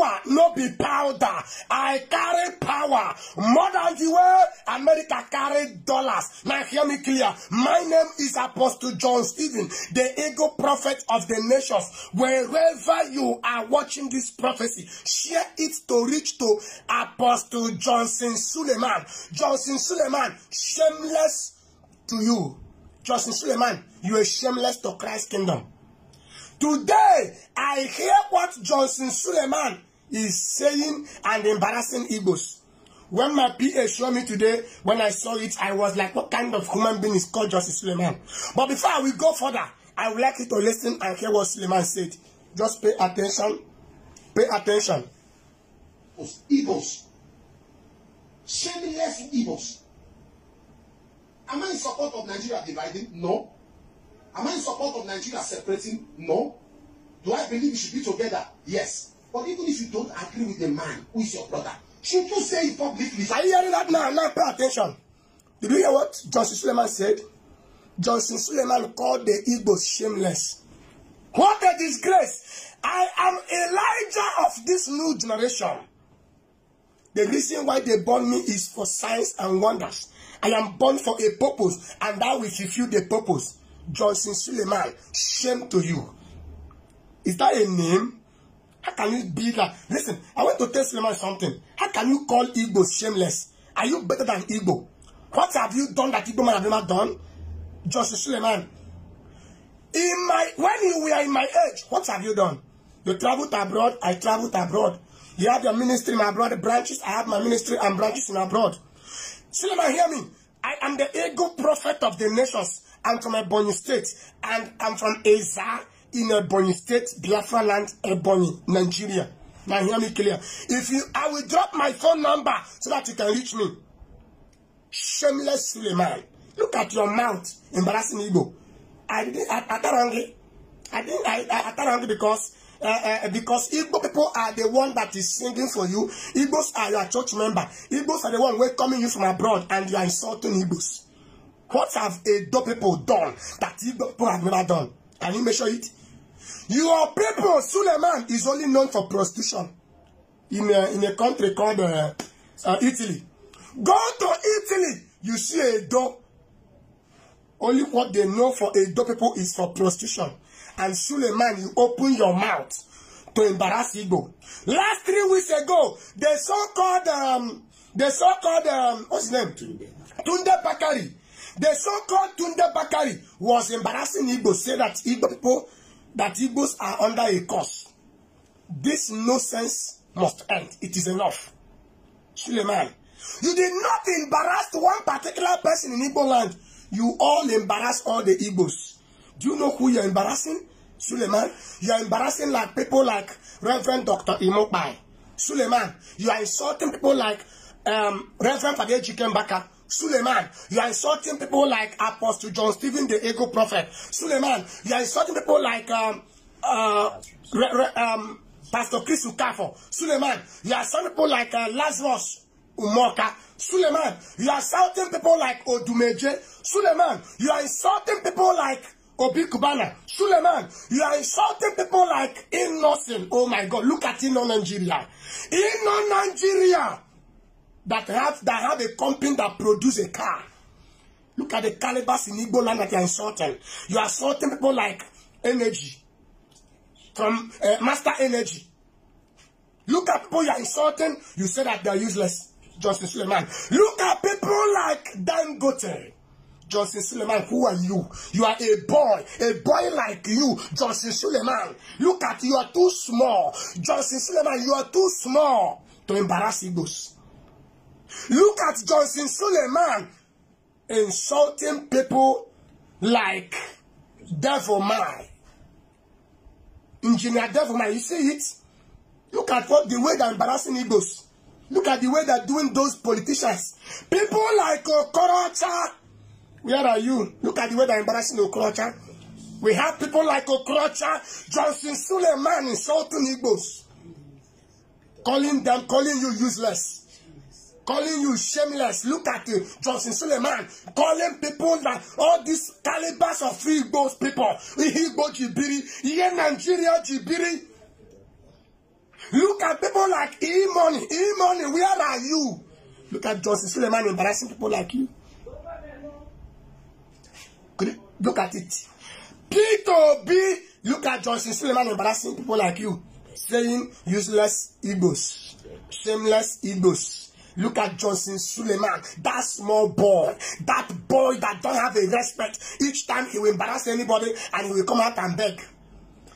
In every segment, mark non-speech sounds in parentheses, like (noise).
power no be powder. I carry power more than the way America carry dollars. Now hear me clear. My name is Apostle John Stephen, the ego prophet of the nations. Wherever you are watching this prophecy, share it to reach to Apostle Johnson Suleiman. Johnson Suleiman, shameless to you. Johnson Suleiman, you are shameless to Christ's kingdom. Today, I hear what Johnson Suleiman is saying and embarrassing egos. When my PA showed me today, when I saw it, I was like, what kind of human being is called Justice Suleiman? But before I will go further, I would like you to listen and hear what Suleiman said. Just pay attention. Pay attention. Egos, Shameless egos. Am I in support of Nigeria dividing? No. Am I in support of Nigeria separating? No. Do I believe we should be together? Yes. But even if you don't agree with the man who is your brother, should you say it publicly? Are you hearing that now? Now pay attention. Did you hear what Johnson Suleiman said? Johnson Suleiman called the Igbos shameless. What a disgrace! I am Elijah of this new generation. The reason why they born me is for signs and wonders. I am born for a purpose, and that will fulfill the purpose. Johnson Suleiman, shame to you. Is that a name? How can you be that? Listen, I want to tell Suleiman something. How can you call Igbo shameless? Are you better than Igbo? What have you done that Igbo man have never done? just Suleiman. In my when you were in my age, what have you done? You traveled abroad, I traveled abroad. You have your ministry in abroad branches, I have my ministry and branches in abroad. Suleiman, hear me. I am the ego prophet of the nations. I'm from Ebonyi State and I'm from Azar in Ebony State, Biafra land, Ebony, Nigeria. Now hear me clear. If you, I will drop my phone number so that you can reach me. Shameless Suleiman. Look at your mouth, embarrassing Igbo. I didn't, I, I got I, I didn't, I, I, I got angry because uh, uh, because Igbo people are the one that is singing for you. Igbos are your church member. Igbos are the one welcoming you from abroad and you are insulting Igbos. What have Edo people done that Igbo people have never done? Can you measure it? Your people, Suleiman, is only known for prostitution in a, uh, in a country called uh, uh, Italy. Go to Italy, you see a door. Only what they know for a door people is for prostitution. And Suleiman, you open your mouth to embarrass Igbo. Last three weeks ago, the so-called, um, the so-called, um, what's his name? Tunde Bakari. The so-called Tunde Bakari was embarrassing Igbo, say that Igbo people that Igbos are under a curse. This nonsense must end. It is enough. Suleiman, you did not embarrass one particular person in Igbo land. You all embarrass all the Igbos. Do you know who you're embarrassing? Suleiman, you are embarrassing like people like Reverend Dr. Imokbai. Suleiman, you are insulting people like um, Reverend Fadej Chikembaka. Suleiman, you are insulting people like Apostle John Stephen, the ego prophet. Suleiman, you are insulting people like um, uh, re, re, um, Pastor Chris Ukafo. Suleiman, you are insulting people like uh, Lazarus Umoka. Suleiman, you are insulting people like Odumeje. Suleiman, you are insulting people like Obi Kubana. Suleiman, you are insulting people like Innocent. Oh my God, look at Inno Nigeria. Inno Nigeria. that have that have a company that produce a car. Look at the calibers in Igbo land that you're insulting. You are insulting people like energy from uh, Master Energy. Look at people you're insulting. You say that they're useless. Justin Suleiman. Look at people like Dan Dangote. Johnson Suleiman, who are you? You are a boy, a boy like you, Johnson Suleiman. Look at you are too small. Johnson Suleiman, you are too small to embarrass Igbos. Look at Johnson Suleiman insulting people like Devil Man. Engineer Devil Man, you see it? Look at what the way they're embarrassing Igbos. Look at the way they're doing those politicians. People like Okorocha. Where are you? Look at the way they're embarrassing Okorocha. We have people like Okorocha, Johnson Suleiman insulting Igbos. Calling them, calling you useless calling you shameless. Look at it, Johnson Suleiman calling people that all these calibers of Igbo people, Igbo Jibiri, yeah, Nigeria Jibiri. Look at people like E-Money, where are you? Look at Johnson Suleiman embarrassing people like you. Look at it. P2B, look at Johnson Suleiman embarrassing people like you, saying useless Igbos, shameless Igbos. Look at Johnson Suleiman, that small boy, that boy that don't have a respect. Each time he will embarrass anybody and he will come out and beg.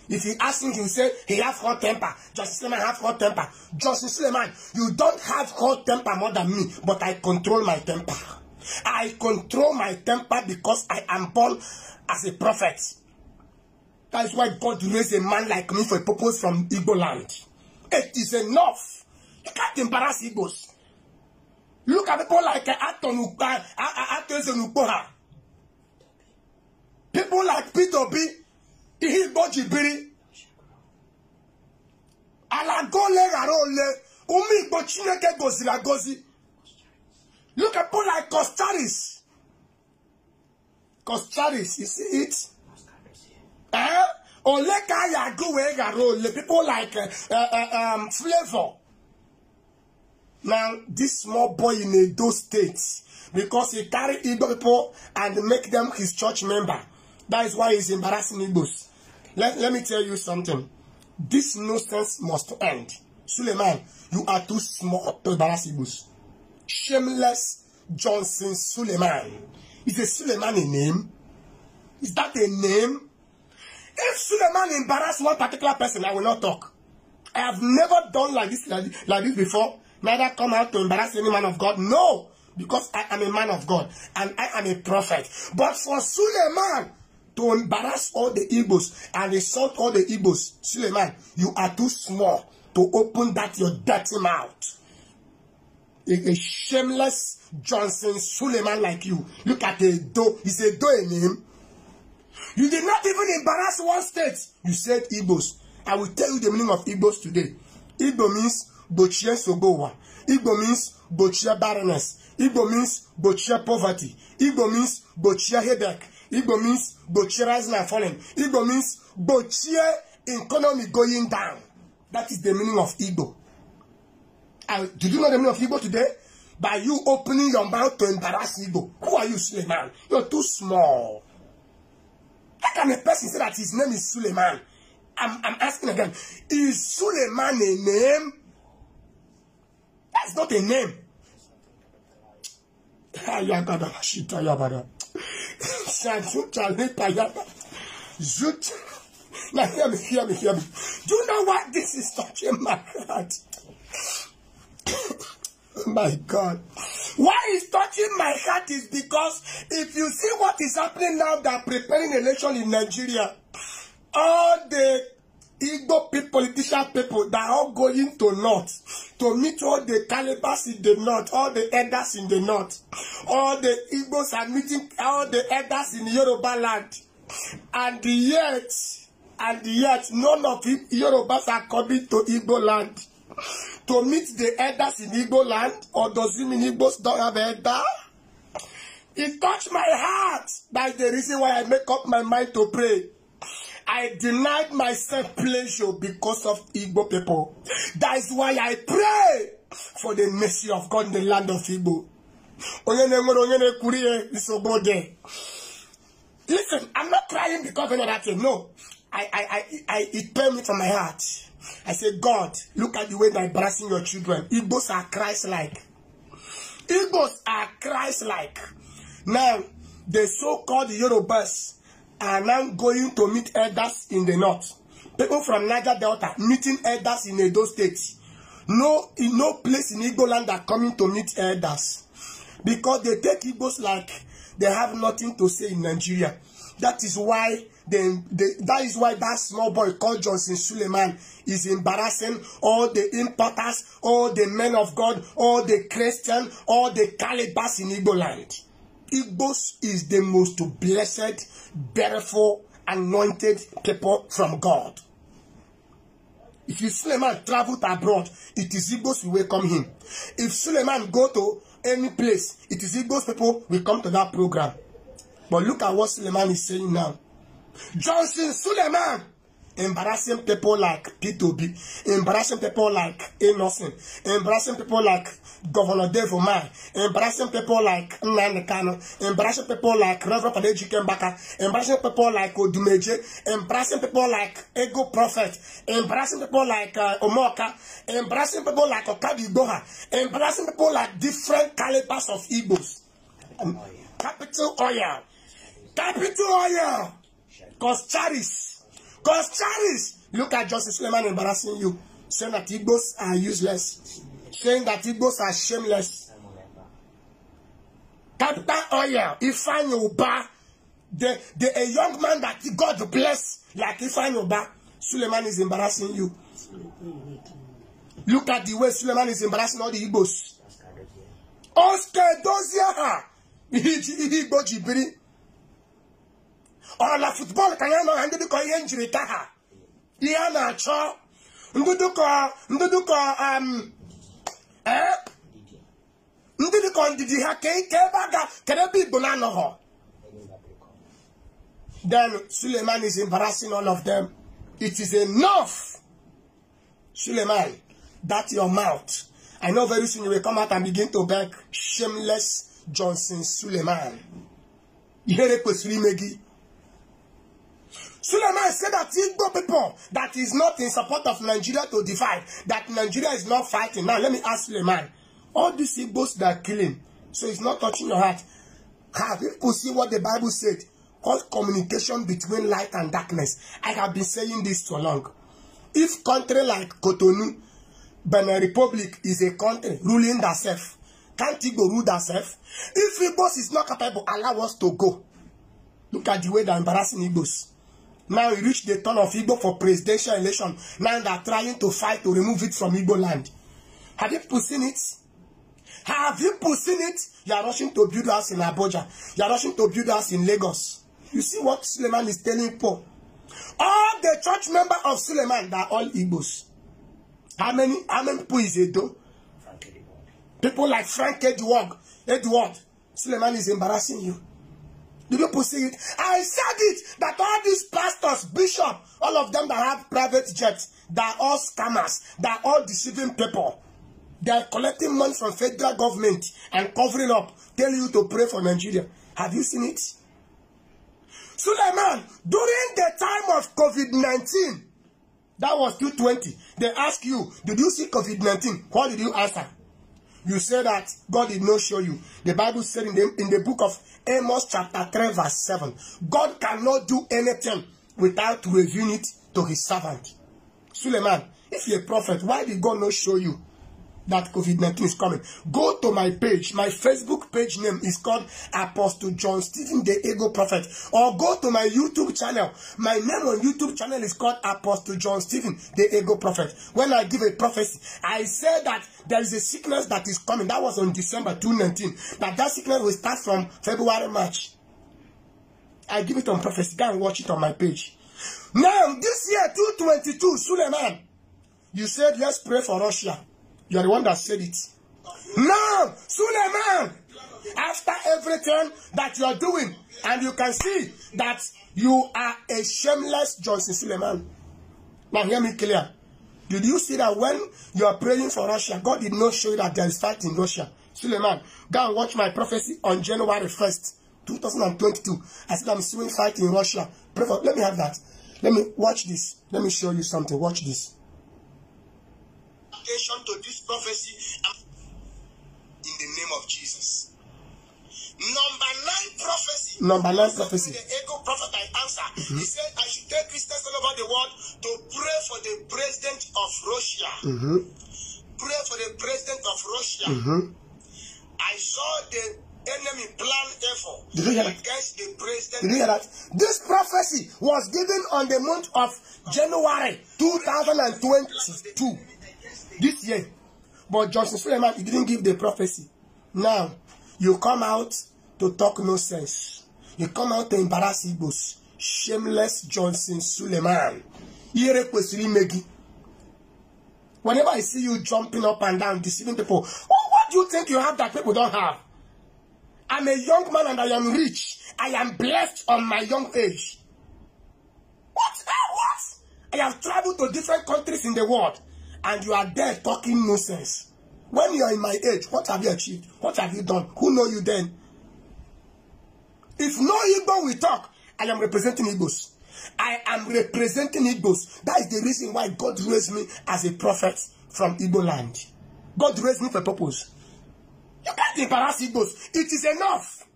If he ask him, he will say he have hot temper. Johnson Suleiman have hot temper. Johnson Suleiman, you don't have hot temper more than me, but I control my temper. I control my temper because I am born as a prophet. That is why God raised a man like me for a purpose from Igbo land. It is enough. You can't embarrass Igbos. Look at people like eh, Atonukpa, Atonukpoha. People like Peter B. p Ihigbo Jibiri. Alagole Rarole, Umi Igbo Chineke Gozi Lagozi. Look at people like Costaris. Costaris, you see it? Eh? Oleka Yaguwe Garole, people like uh, uh, um, Flavor. Now, this small boy in Edo State, because he carry Igbo people and make them his church member. That is why he's embarrassing Igbos. Let, let me tell you something. This nonsense must end. Suleiman, you are too small to embarrass Igbos. Shameless Johnson Suleiman. Is a Suleiman a name? Is that a name? If Suleiman embarrass one particular person, I will not talk. I have never done like this like, like this before. Neither come out to embarrass any man of God. No, because I am a man of God and I am a prophet. But for Suleiman to embarrass all the Igbos and insult all the Igbos, Suleiman, you are too small to open that your dirty mouth. A, a shameless Johnson Suleiman like you. Look at the do. He's a do in him. You did not even embarrass one state. You said Igbos. I will tell you the meaning of Igbos today. Igbo means Bochie Sogowa. Igbo means Bochie barrenness. Igbo means Bochie poverty. Igbo means Bochie headache. Igbo means Bochie rising and falling. Igbo means Bochie economy going down. That is the meaning of Igbo. And you know the meaning of Igbo today? By you opening your mouth to embarrass Igbo. Who are you, Suleiman? You're too small. How can a person say that his name is Suleiman? I'm, I'm asking again. Is Suleiman a name? That's not a name. Ayagada Shita Yabada. Zut. Now hear me, hear me, hear me. Do you know what this is touching my heart? (coughs) my God. Why is touching my heart is because if you see what is happening now, they're preparing election in Nigeria all the Igbo people, politician people that are all going to north to meet all the Calabas in the north, all the elders in the north. All the Igbos are meeting all the elders in Yoruba land. And yet, and yet, none of Yorubas are coming to Igbo land. To meet the elders in Igbo land, or does it mean Igbos don't have elder? It touched my heart. That's the reason why I make up my mind to pray. I denied myself pleasure because of Igbo people. That is why I pray for the mercy of God in the land of Igbo. Listen, I'm not crying because of another thing. No. I, I, I, I, it pain me from my heart. I said, God, look at the way they're embarrassing your children. Igbos are Christ-like. Igbos are Christ-like. Now, the so-called Yorubas, are now going to meet elders in the north. People from Niger Delta meeting elders in Edo State. No, in no place in Igbo land are coming to meet elders because they take Igbos like they have nothing to say in Nigeria. That is why they, they, that is why that small boy called Johnson Suleiman is embarrassing all the importers, all the men of God, all the Christian, all the Calibas in Igbo land. Igbos is the most blessed, beautiful, anointed people from God. If Suleiman traveled abroad, it is Igbos who welcome him. If Suleiman go to any place, it is Igbos people will come to that program. But look at what Suleiman is saying now. Johnson Suleiman embarrassing people like P2B, embarrassing people like Innocent, embarrassing people like Governor Devomai, embarrassing people like Kano. embarrassing people like Reverend Fadeji Kembaka, embarrassing people like Odumeje, embarrassing people like Ego Prophet, embarrassing people like uh, Omoka, embarrassing people like Okabi Doha, embarrassing people like different calibers of Igbos. Capital oil. Capital oil. Cause Charis. Cause Charles, look at Justice Suleiman embarrassing you, saying that Igbos are useless, saying that Igbos are shameless. Capital Oil, Ifeanyi the, the, a young man that God bless, like Ifeanyi Suleiman is embarrassing you. Look at the way Suleiman is embarrassing all the Igbos. Oscar Dozier, (laughs) Igbo Jibiri ọ na futbọọlụ ka ya nọ ha ndị dịkọ ihe njirita ha ihe a na-achọ ndị dịkọ ndị dịkọ um, eh? ndị dịkọ ndidi ha ka ebe a ga kedu ebe igbo na-anọghọ then Suleiman is embarrassing all of them. It is enough, Suleiman, that your mouth. I know very soon you will come out and begin to beg shameless Johnson Suleiman. Ihe kwesịrị ime gị Suleiman said that Igbo people that is not in support of Nigeria to divide, that Nigeria is not fighting. Now, let me ask Suleiman. All these Igbos that are killing, so it's not touching your heart. Have people see what the Bible said? Called communication between light and darkness. I have been saying this for long. If country like Cotonou, Benin Republic is a country ruling itself, can't Igbo rule themselves? If Igbos is not capable, allow us to go. Look at the way they're embarrassing Igbos. Now we reach the turn of Igbo for presidential election. Now they are trying to fight to remove it from Igbo land. Have you seen it? Have you seen it? You are rushing to build house in Abuja. You are rushing to build house in Lagos. You see what Suleiman is telling Paul. All the church members of Suleiman, they are all Igbos. How many, how many people is Edo? People like Frank Edward, Edward. Suleiman is embarrassing you. Do people see it? I said it that all these pastors, bishop, all of them that have private jets, they're all scammers, they're all deceiving people. They are collecting money from federal government and covering up, tell you to pray for Nigeria. Have you seen it? Suleiman, during the time of covid nineteen, that was two twenty, they ask you, did you see covid nineteen? What did you answer? You say that God did not show you. The Bible said in the, in the book of Amos chapter 3 verse 7, God cannot do anything without revealing it to his servant. Suleiman, if you're a prophet, why did God not show you? that COVID-19 is coming. Go to my page. My Facebook page name is called Apostle John Stephen the Ego Prophet. Or go to my YouTube channel. My name on YouTube channel is called Apostle John Stephen the Ego Prophet. When I give a prophecy, I say that there is a sickness that is coming. That was on December 2019. But that sickness will start from February, March. I give it on prophecy. Go and watch it on my page. Now, this year, 222, Suleiman, you said, let's pray for Russia. You are the one that said it. Now, Suleiman, after everything that you are doing, and you can see that you are a shameless Johnson Suleiman. Now, hear me clear. Did you see that when you are praying for Russia, God did not show you that there is fight in Russia? Suleiman, go and watch my prophecy on January 1st, 2022. I said, I'm seeing fight in Russia. Pray for, let me have that. Let me watch this. Let me show you something. Watch this application to this prophecy in the name of Jesus. Number nine prophecy. Number nine prophecy. The echo prophet I answer. Mm-hmm. He said, I should take Christians all over the world to pray for the president of Russia. Mm-hmm. Pray for the president of Russia. Mm-hmm. I saw the enemy plan effort Did you hear that? against the president. Did you hear that? This prophecy was given on the month of January 2022 this year. But Johnson Suleiman, he didn't give the prophecy. Now, you come out to talk nonsense. You come out to embarrass Igbos. Shameless Johnson Suleiman. Ire kwesiri megi. Whenever I see you jumping up and down, deceiving people, oh, what do you think you have that people don't have? I'm a young man and I am rich. I am blessed on my young age. What? What? I have traveled to different countries in the world and you are there talking nonsense when you are in my age what have you achieved what have you done who know you then if no Igbo will talk I am representing Igbos I am representing Igbos that is the reason why God raised me as a prophet from Igbo land God raised me for a purpose you can't embarrass Igbos it is enough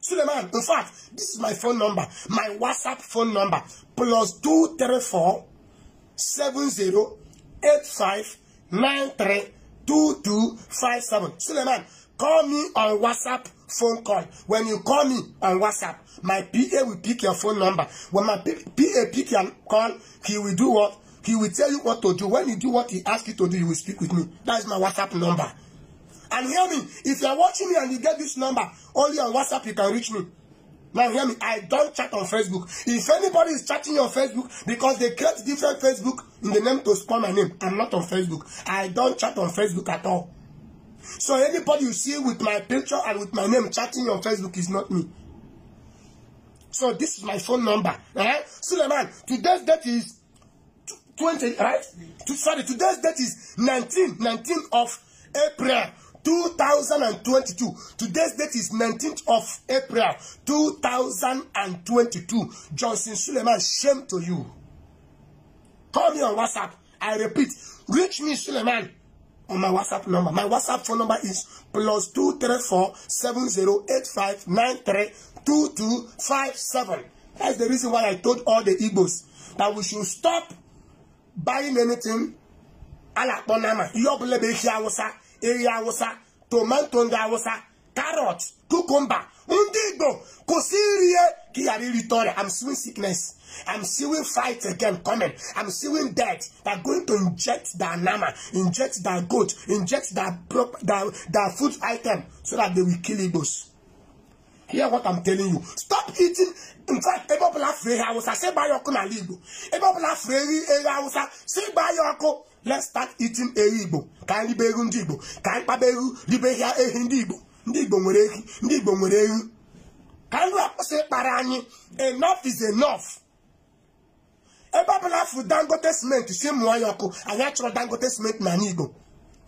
Suleiman in fact this is my phone number my WhatsApp phone number plus two three four seven zero 85 93 2257. Suleiman, call me on WhatsApp phone call. When you call me on WhatsApp, my PA will pick your phone number. When my PA pick your call, he will do what? He will tell you what to do. When you do what he asks you to do, you will speak with me. That is my WhatsApp number. And hear me, if you are watching me and you get this number, only on WhatsApp you can reach me. Now hear me, I don't chat on Facebook. If anybody is chatting on Facebook because they create different Facebook in the name to spoil my name. I'm not on Facebook. I don't chat on Facebook at all. So anybody you see with my picture and with my name chatting on Facebook is not me. So this is my phone number. Right? Suleiman, today's date is 20, right? To, sorry, today's date is 19, 19 of April 2022. Today's date is 19th of April 2022. Johnson Suleiman, shame to you. Call me on WhatsApp. I repeat, reach me, Suleiman, on my WhatsApp number. My WhatsApp phone number is plus 234 7085 232257. That's the reason why I told all the Igbos that we should stop buying anything ala kpọnama ihe ọbụla bụ ehi tomanto ndị awụsa carrot cucumber ndị igbo kwụsị iri ihe ka ị ghara irite ọrịa i'm seeing sickness i'm seeing fight again coming i'm seeing death they're going to inject their nama inject their goat inject their, prop, their, their food item so that they will kill igbos hear what i'm telling you stop eating in fact ebe ọbụla fee ha awụsa si gbaa ya ọkụ n'ala igbo ebe ọbụla fee eri eri awụsa si gbaa ya ọkụ let's start eating eri igbo ka anyị ribe eru ndị igbo ka anyị kpaba eru ribe ya ehi ndị igbo ndị igbo nwere ehi ndị igbo nwere ehi ka anyị akwụsị ịkpara anyị enough is enough ebe ọbụla afụ dangote cement si mụọ ya ọkụ anyị achọrọ dangote cement na anyị igbo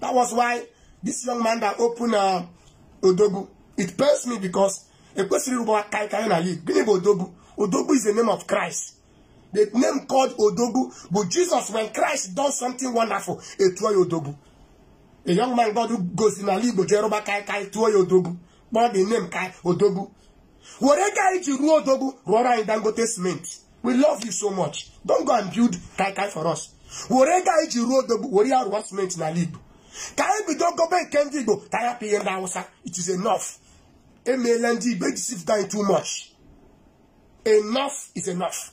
that was why this young man that open uh, Odogu. it pains me because ekwesịrị ụgbọ aka anyị anyị na ya gịnị bụ Odogu odogwu is the name of christ the name called Odogu. bụ jesus when christ done something wonderful etuo ya Odogu a young man God who goes in ala igbo jeroba kai kai tụọ ya odogwu kpọọ the name kai odogwu were ka anyị ji ruo odogwu rụọrọ anyị dangote cement we love you so much don't go and build kai kai for us were ka anyị ji ruo odogwu were ya rụọ cement n'ala igbo ka anyị bido gobe nke ndị igbo ka anyị hapụ ihe ndị awụsa it is enough emeela ndị igbo ejisifụta anyị too much enough is enough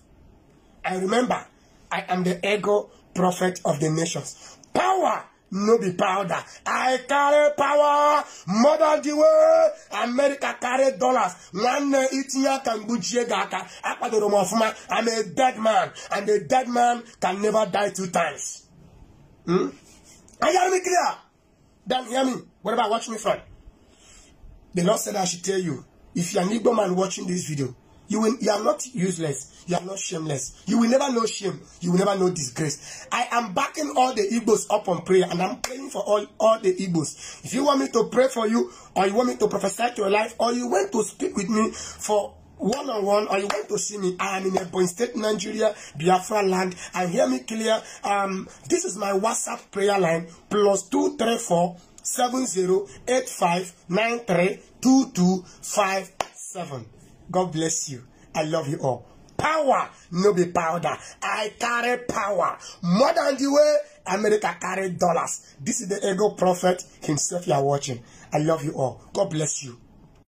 i remember i am the ego prophet of the nations power no be powder. I carry power more than the way America carry dollars. Nwanne itinye aka mgbuchie gị the room m man. I'm a dead man and a dead man can never die two times. Hmm? Are you me clear? Then hear me. What about watching me from? The Lord said I should tell you, if you're an Igbo man watching this video, You will you are not useless. You are not shameless. You will never know shame. You will never know disgrace. I am backing all the Igbos up on prayer and I'm praying for all, all the Igbos. If you want me to pray for you or you want me to prophesy to your life or you want to speak with me for one-on-one or you want to see me, I am in Ebonyi State, Nigeria, Biafra land. and hear me clear. Um, this is my WhatsApp prayer line, plus two two three three four seven zero eight five nine two five seven. God bless you. I love you all. Power, no be powder. I carry power. More than the way America carry dollars. This is the ego prophet himself you are watching. I love you all. God bless you.